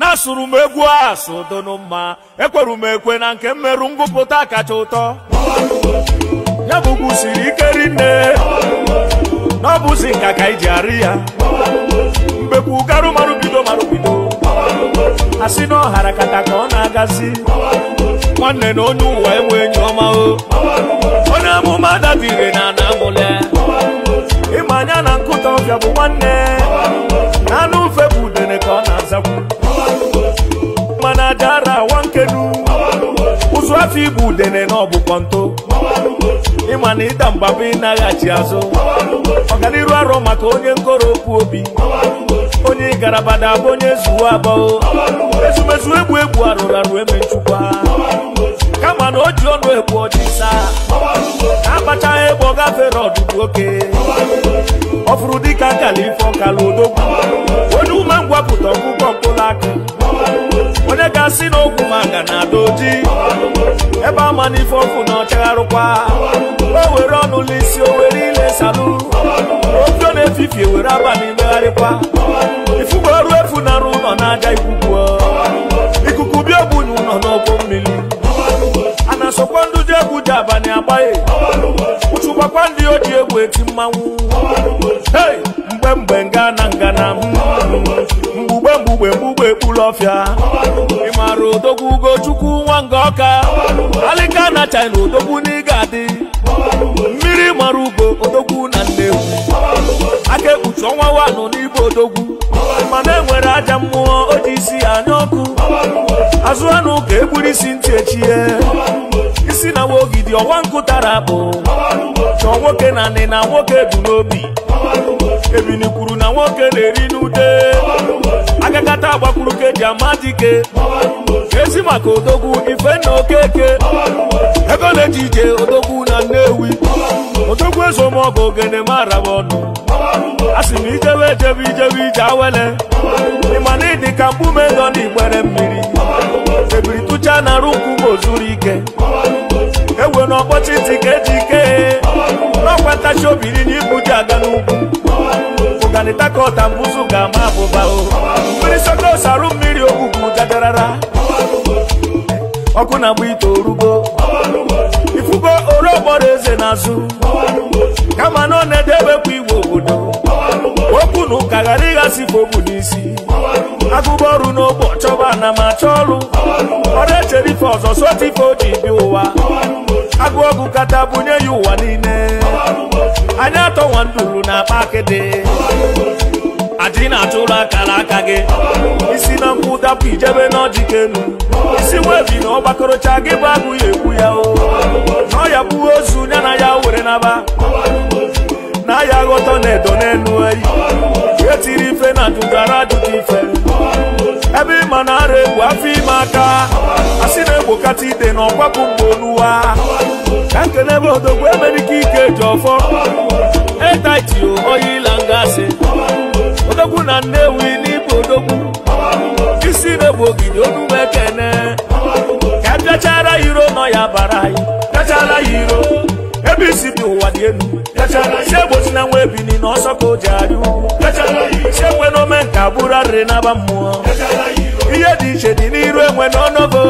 na-asụrụ m egwu asụ donu mma ekweru m ekwe na nke mmerụ ngụpụta kacha ụtọ ya bụ siri ike rinne na ọ bụzi nka ka iji arị ya mbekwu garụ marụbido marụbido a sị na ọhara kata ka ọ na-agazi nwanne na onye ụwa enwe enyi ọma o onye amụma dadire na ana amụle ịma anya na nkụta ọbịa bụ nwanne na anụ ufe bụ udene ka ọ na-azakwu na awa nkedu ụzụ afọ igbu udene na ọbụ kọnto ịma na ịda mgbaba ịnaghachi azụ ọganiru arọ maka onye nkoro obi onye garabada abụ onye zuwo abụọ ezumezu egbu egbu arụrụ arụ eme kama na o ji ọnụ egbu ọchịsa akpachaghị egbe ọ gafere ọdụdụ oke ọ fụrụ dịka nkala ife odogwu onye ume na-asị na okwu maka na-ada ebe ama na ife ọkụ na ọchagharụkwa o were ọnụla isi o were ile salu ofe na-efifie were abalị megharịkwa ifuwe ọrụ efu narụ ụlọ na-aja ikwukwu ikuku bịa ogbunye ụlọ n'ọkụ mmiri a na-asọkwa ndụ egwu ji abalị agbaghị ụchụkwakwa ndị o ji egwu eti mmanwụ mgbe mgbe lọfịa ịmara odogwu ugochukwu nwa nga ọka alịka na china odogwu n'ịga adị mmiri mara ugo odogwu na nnewu aka ekpuchi ọnwa wanụ n'ibe odogwu mana enwere aja mmụọ o isi anya ọkụ azụ anụ ka egburu isi ntị echie isi na wogidi ọwa nkụ tara akpụ chọọ nwoke na nị na nwoke bụ n'obi ebini kwuru na nwoke na-eri n'ude aka agbakwuru ka eji ama dike esi maka odogwu ife na okeke ebe na-eji ije odogwu na nnewi odogwu ezomọgụ ogene mara m ọnụ a sị m ijewe ejebe ijewe ije awele ịma na ịdị ka mgbume nọ n'igbere mmiri ebiri tụcha na arụ nkwụ ma ike ewe na ọkpọchi ntị ka eji ike n'ọkwa ntachi obiri na ibu ji aga n'ugwu ọganịta ka ọta mbụzụ ga-ama abụba o mmiri sokos arụ mmiri ogwugwu gadarara ọkụ na-agba ite orugo ifugo orogbọrọ eze n'azụ kama na ọ na-edebekwa igwe obodo okwu na ụka ghara ịghasịfe ogbu n'isi agụba ọrụ n'ogbo chọba na ma achọ ọrụ ọrụ echere ife ọzọ sotife o ji bịa ụwa agụ ọgụ kata bunye ya ụwa niile anya atọ nduru na akpa akịdị adị na-atụrụ akara aka gị isi na nkwụ dapụ ijebe n'ọjị kenu isi webi na ọgbakọrọcha gị bụ abụghị ekwu ya o na ọya bụ ozu ya na ya were naba na ya aghọtọ na edo n'elu eyi etiri ife na dudara adụdị ife ebe ịma na ara egwu afọ aka a sị na egbokata ide na ọgbapụ mgbe oluwa ka nkele bụ odogwu emere ike ike ji ọfọ etaiti oyi ila ngasị odogwu na nnewi n'ịbụ odogwu isi na-egbu ogidi onume ekene ka bịachara e iro nọ ya bara anyị bịachara ya iro ebe isi dị ụwa dị elu si egbochi na nwa ebini na ọsọ ka o ji arụ si ekwe n'ome nke abụrụ arịrị n'aba mmụọ ihe dị iche dị n'iru enwe n'ọnọbo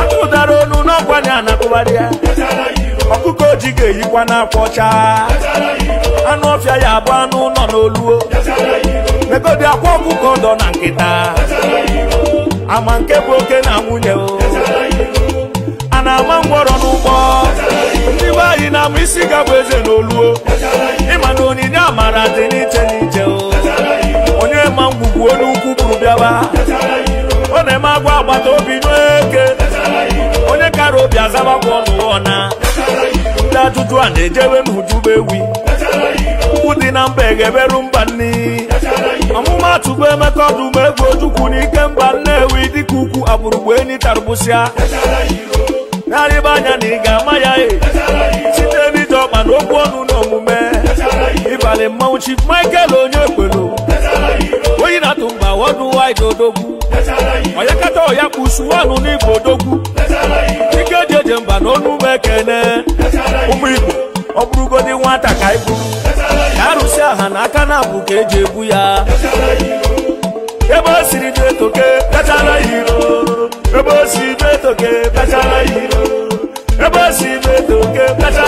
atụdara onu n'ọkwa na anakụbara ya ọkụkọ ji ga-eyikwa n'akwa ọcha anụ ọfịa ya abụ anụ nọ n'oluo megodi akwa ọkụkọ dọ na nkịta ama nke bụ oke na nwunye o a na-ama ngwọrọ n'ụgbọ ndị be anyị na-ama isi ga eze n'oluo ịma na onyinye amara dị obi azaba ọnụ na ndị ajụjụ a na-ejebe m wi. ukwu dị na mba egeberu mba nni ọmụmatụ bụ emeka ọdụmegwu ojukwu n'ike mba nnewi dịka ukwu agbụrụgbu enyi tarụbụsịa narịba anya na ị ga-ama ya e site n'ije ọkpa na okwu ọnụ na omume ịbalị mmanwụ chi Michael onye ekwelu oyi na-atụ mba wọdụ wide onye kata ọya kpusuwanụ n'igbo odogwu mana onu m ekene ụmụ igbo ọ bụrụgodị nwata ka anyị ya ka arụsị aha na aka na-abụ ka eji ebu ya ebe o siri dị etoke pịachara ya iro ebe o siri dị etoke pịachara ya iro ebe o siri dị etoke pịachara